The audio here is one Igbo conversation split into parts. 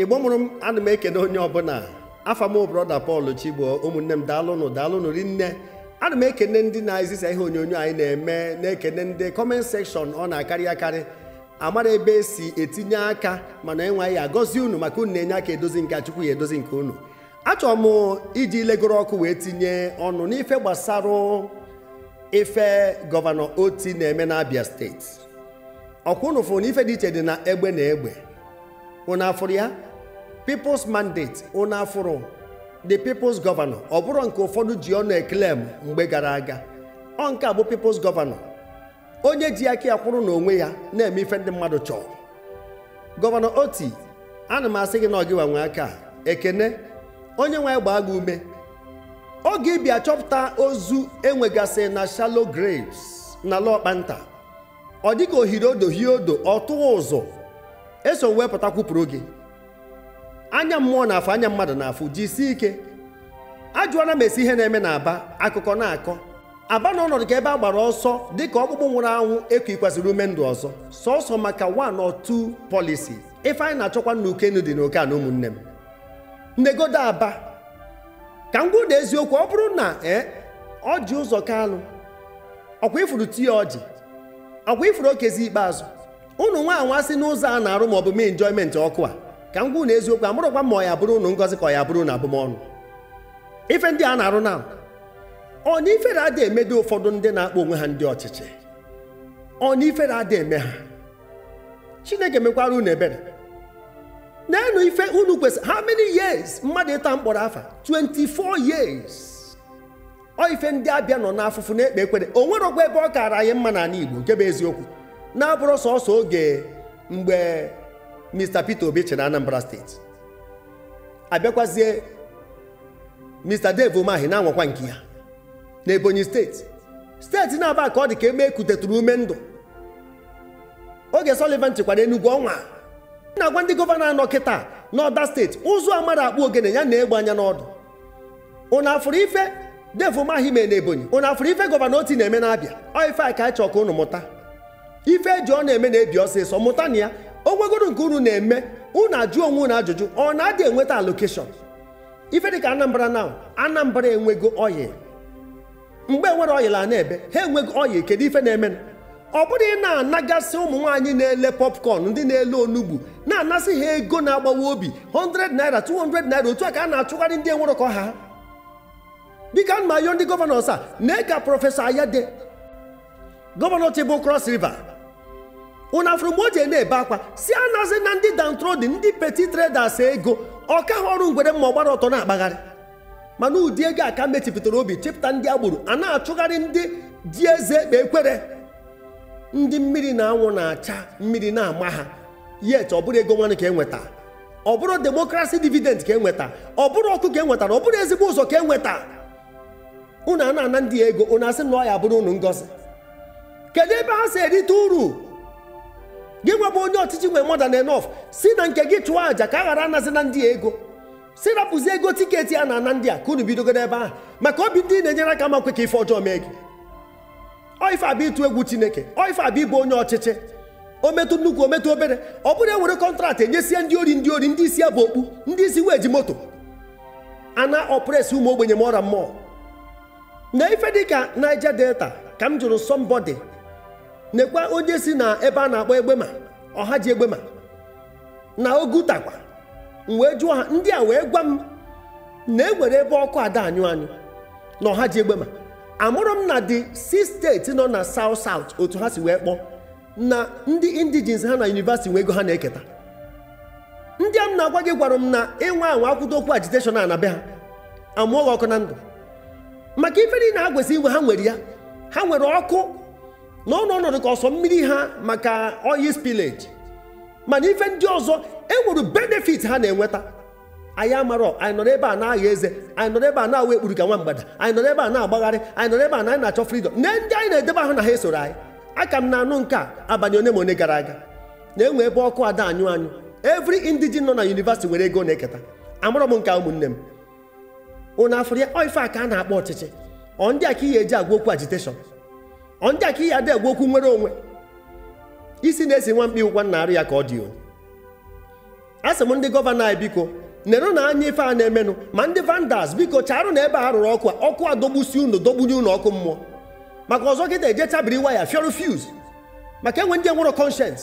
igbo mụrụ m ana m ekene onye ọbụla afamo broda Paul Chigbo ụmụnne m daalụnụ daalụnụ rinne ana m ekene ndị na-ezisa ihe onyonyo anyị na-eme na-ekene ndị kọment sekshọn ọ na-akarị akarị amara ebe esi etinye aka mana enweghị agọzi unu maka unu na-enye aka edozi nke achukwu ya edozi nke unu achọrọ m iji legoro ọkụ wee tinye ọnụ n'ife gbasara ife gọvanọ Oti na-eme n'Abia steeti ọkwa unu fụrụ na ife dị iche dị na egbe na egbe unu afụrụ ya people's mandate unu afụrụ the people's governor ọ bụrụ nke ụfọdụ ji ọnụ m mgbe gara aga ọ nke a bụ people's governor onye ji aka ya kwụrụ n'onwe ya na-eme ife ndị mmadụ chọrọ gọvanọ oti ana m asị gị na ọgịwa nwe aka ekene onye nwe gbaa gị ume oge ịbịa chọpụta ozu enwegasị na shalo graves na ala ọkpanta ọ dịka ohiri odo hie odo ọ tụwa ụzọ eso wepụta kwupụrụ gị anya mmụọ na-afụ anya mmadụ na-afụ si ike ajụọla m esi ihe na-eme n'aba akụkọ na-akọ aba na ọnọdụ ka ebe a gbara ọsọ dịka ọkpụkpụ nwụrụ anwụ ekwikwasịrị ume ndụ ọzọ sọsọ maka one or two policies ife anyị na-achọkwa n'ukenu dị n'oke na ụmụnne m negodo aba ka m gwuda eziokwu ọ bụrụ na ee ji ụzọ kalụ ọkwa ifuru tii ọjị ọkwa ifuru okezi ikpeazụ ụnụ nwa anwa sị n'ụzọ a na-arụ ma ọ bụ mee enjoyment ọkụ a ka m gwụ na eziokwu amụrụkwa ma ọ ya bụrụ unu ngọzi ka ọ ya bụrụ na abụmọnụ ife ndị a na-arụ na ọna ifere adị dị ụfọdụ ndị na-akpọ onwe ha ndị ọchịchị ọna ifere adị eme ha chineke mekwara unu ebere na-enu ife unu kwesịrị how many years mmadụ ịta mkpọrọ afa 24 years ọ ife ndị abịa nọ n'afụfụ na-ekpe ekwere o nwerọkwa ebe ọ kaara anyị mma n'ala Igbo nke bụ eziokwu na-abụrụ sọsọ oge mgbe Mr. Peter Obi na Anambra steeti abịakwazie Mr. Dave Mahi na-anwakwa nke ya na Ebonyi steeti steeti na-aba ka ọ dị ka eme ekutetụrụ ume ndụ oge Sullivan chịkwara Enugu ọnwa na-agwa ndị gọvanọ anọ kịta n'ọda steeti ụzọ amara akpụ ogene ya na-egbe anya n'ọdụ ụnụ afụrụ ife Dave Umahi mee na Ebonyi ụnụ afụrụ ife gọvanọ oti na-eme n'abịa ọ ife a ka anyị chọọ ka ụnụ mụta ife eji ọ na-eme na-ebi ọsịsọ mụta na ya o nke unu na-eme unu ajụ onwe unu ajụjụ ọ na-adị enweta alokeshọn ife dịka anambra na anambra enwego oyi mgbe enwere oyi la na-ebe ha enwego oyi kedu ife na-eme ọ bụrụ ị na-anagasị ụmụ nwaanyị na-ele popcorn ndị na-ele onugbu na-anasị ha ego na-agbawa obi 100 naira 200 naira otu a ka a na-achụgharị ndị enwere ka ha biko ana m ndị gọvanọs a na ka prọfesọ Ayade gọvanọ Chibụ kros River una ji na-ebe akwa si anazi na ndị dantrodi ndị peti traders ego ka ha ọrụ ngwere mma ọgbara ọtọ na-akpagharị mana ụdị ego aka mechipụtara obi chepụta ndị agbụrụ a na-achụgharị ndị ji eze ekpe ekwere ndị mmiri na anwụ na-acha mmiri na-ama ha yet ọ bụrụ ego nwanne ka enweta ọ bụrụ demokrasi dividend ka enweta ọ bụrụ ọkụ ka enwetara ọ bụrụ ezigbo ụzọ ka enweta ụnụ a na-ana ndị ego unu asị na ọ ya bụrụ unu ngozi kedu ebe ha si erite uru gị nwebụ onye ọchịchị nwe more na enough si na nke gị chụọ àjà ka a ghara anazi na ndị ego si rapụzi ego tiketi a na-ana ndị a ka unu ebe ahụ maka obi ndị na-enyere aka makwe ka ife ọjọọ mee gị oife abịa ịtụ egwu chineke oife abụ ịbụ onye ọchịchị ometụ nnukwu ometụ obere ọ bụrụ ewere kọntraktị enyesie ndị ori ndị ori ndị isi bụ okpu ndị isi ji moto ana ọpres ụmụ ogbenye ma ọra mmụọ na ife dịka Niger Delta ka m jụrụ somebody nekwa onye si na ebe a na-akpọ egbema ọha ji egbema na ogutakwa wee jụọ ha ndị a wee gwa m na ewere ebe ọkụ ada anyụ anyụ na ọha ji egbema amụrụ m na the si steeti nọ na south south otu ha si wee kpọọ na ndị indigens ha na yunivasiti nwe ego ha na-eketa ndị a m na-agwa gị gwara m na ịnwa anwa akwụdo okwu agiteshọn a na be ha amụọ ọkụ na ndụ maka ife na ha inwe ha nwere ya ha nwere ọkụ nọ n'ọnọdụ ka ọsọ mmiri ha maka oyi spillage mana ife ndị ọzọ enwere benefit ha na-enweta anyị amarọ anyị nọrọ ebe a na-agha eze anyị nọrọ ebe a na-awa ekpuru ka nwa mgbada anyị nọrọ ebe a na-agbagharị anyị nọrọ ebe a na anyị na-achọ freedom na ndị anyị na-edebe ahụ na ha esoro anyị aka m na-anụ nke a abalị one ma one gara aga na-enwe ebe ọkụ ada anyụ anyụ every indigene nọ na yunivasiti nwere ego na-eketa amarọ m nke ụmụnne m ụnụ afụrụ ya a ka a na-akpọ ọchịchị ọ ndị a ka ihe eji agwa okwu agitation ndị aka ihe ada okwu nwere onwe isi na-esi nwa mkpi ụgwa narị ya ka ọ dị a sị m ndị gọvanọ anyị biko nerụ na anya ife a na-emenụ ma ndị vandas biko charụ na ebe a rụrụ ọkụ ọkụ a dogbusi unu dogbunye unu ọkụ mmụọ maka ọzọ gị na-eje chabiri waya fiọrụ fiuz maka enwe ndị enwero conscience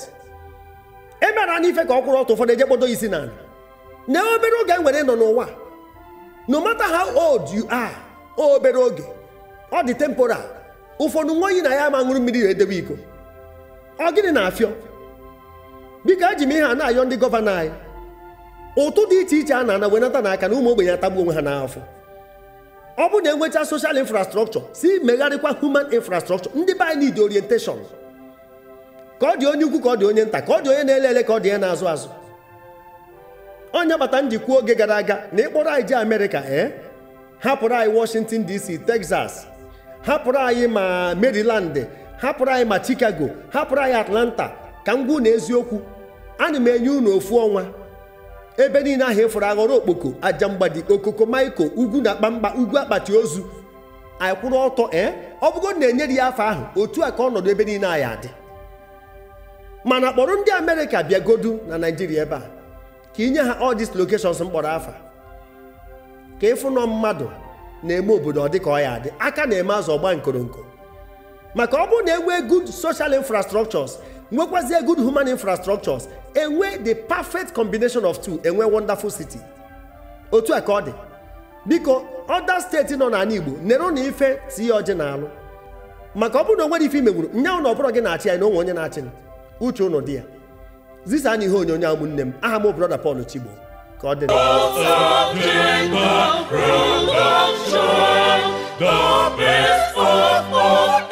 emera na ife ka ọ kwụrụ ọtụ ụfọdụ eje kpodo isi na na obere oge e nwere nọ n'ụwa no matter how old you are obere oge ọ dị temporal ụfọdụ nwa oyi na ya ama ṅụrụ mmiri na edebe iko ọ gịnị na-afịọ biko eji m ihe a na-ayọ ndị gọvanọ anyị ụtụ dị iche iche a na-ana wenata n'aka na ụmụ ogbenye atagbu onwe ha n'afọ ọ bụ na enwecha soshal infrastrọkchọ si megharịkwa human infrastrọkchọ ndị be anyị need orientation ka ọ dị onye ukwu ka ọ dị onye nta ka ọ dị onye na-ele ele ka ọ dị ya na-azụ azụ onye bata njikwa oge gara aga na ịkpọrọ anyị ji Amerịka ee eh? hapụrụ anyị Washington DC Texas hapụrụ anyị ma maryland hapụrụ anyị ma chicago hapụrụ anyị atlanta ka m gwụ eziokwu ana m enye unu ofu ọnwa ebe niile ahụ ịfụrụ e aghọrọ okpoko aja mgbadi okoko maiko ugwu na akpamkpa ugwu akpati ozu anyị kwụrụ ọtọ ee eh? ọ bụgo na-enyere ya afọ ahụ otu a ka ọnọdụ ebe niile anyị adị mana kpọrọ ndị amerịka bịagodu na naijiria ebe a ka nye ha all these mkpọrọ afa ka ịfụnọ mmadụ na-eme obodo ọ dị ka ọ ya adị aka na-eme azụ ọgba nkoronko maka ọ bụrụ na enwee good social infrastructures nwekwazie good human infrastructures enwe the perfect combination of two enwe wonderful city otu a ka ọ dị biko ọda steeti nọ n'ala Igbo nere na ife tinye ọjị na-alụ maka ọ bụrụ na o nwere ife imegburu nye ụnụ ọbụrụ gị na-achị anyị na onwe onye na-achị uche ụnụ dị ya zisa na ihe onyonyo a ụmụnne m aha m brọda Paul Chigbo God in the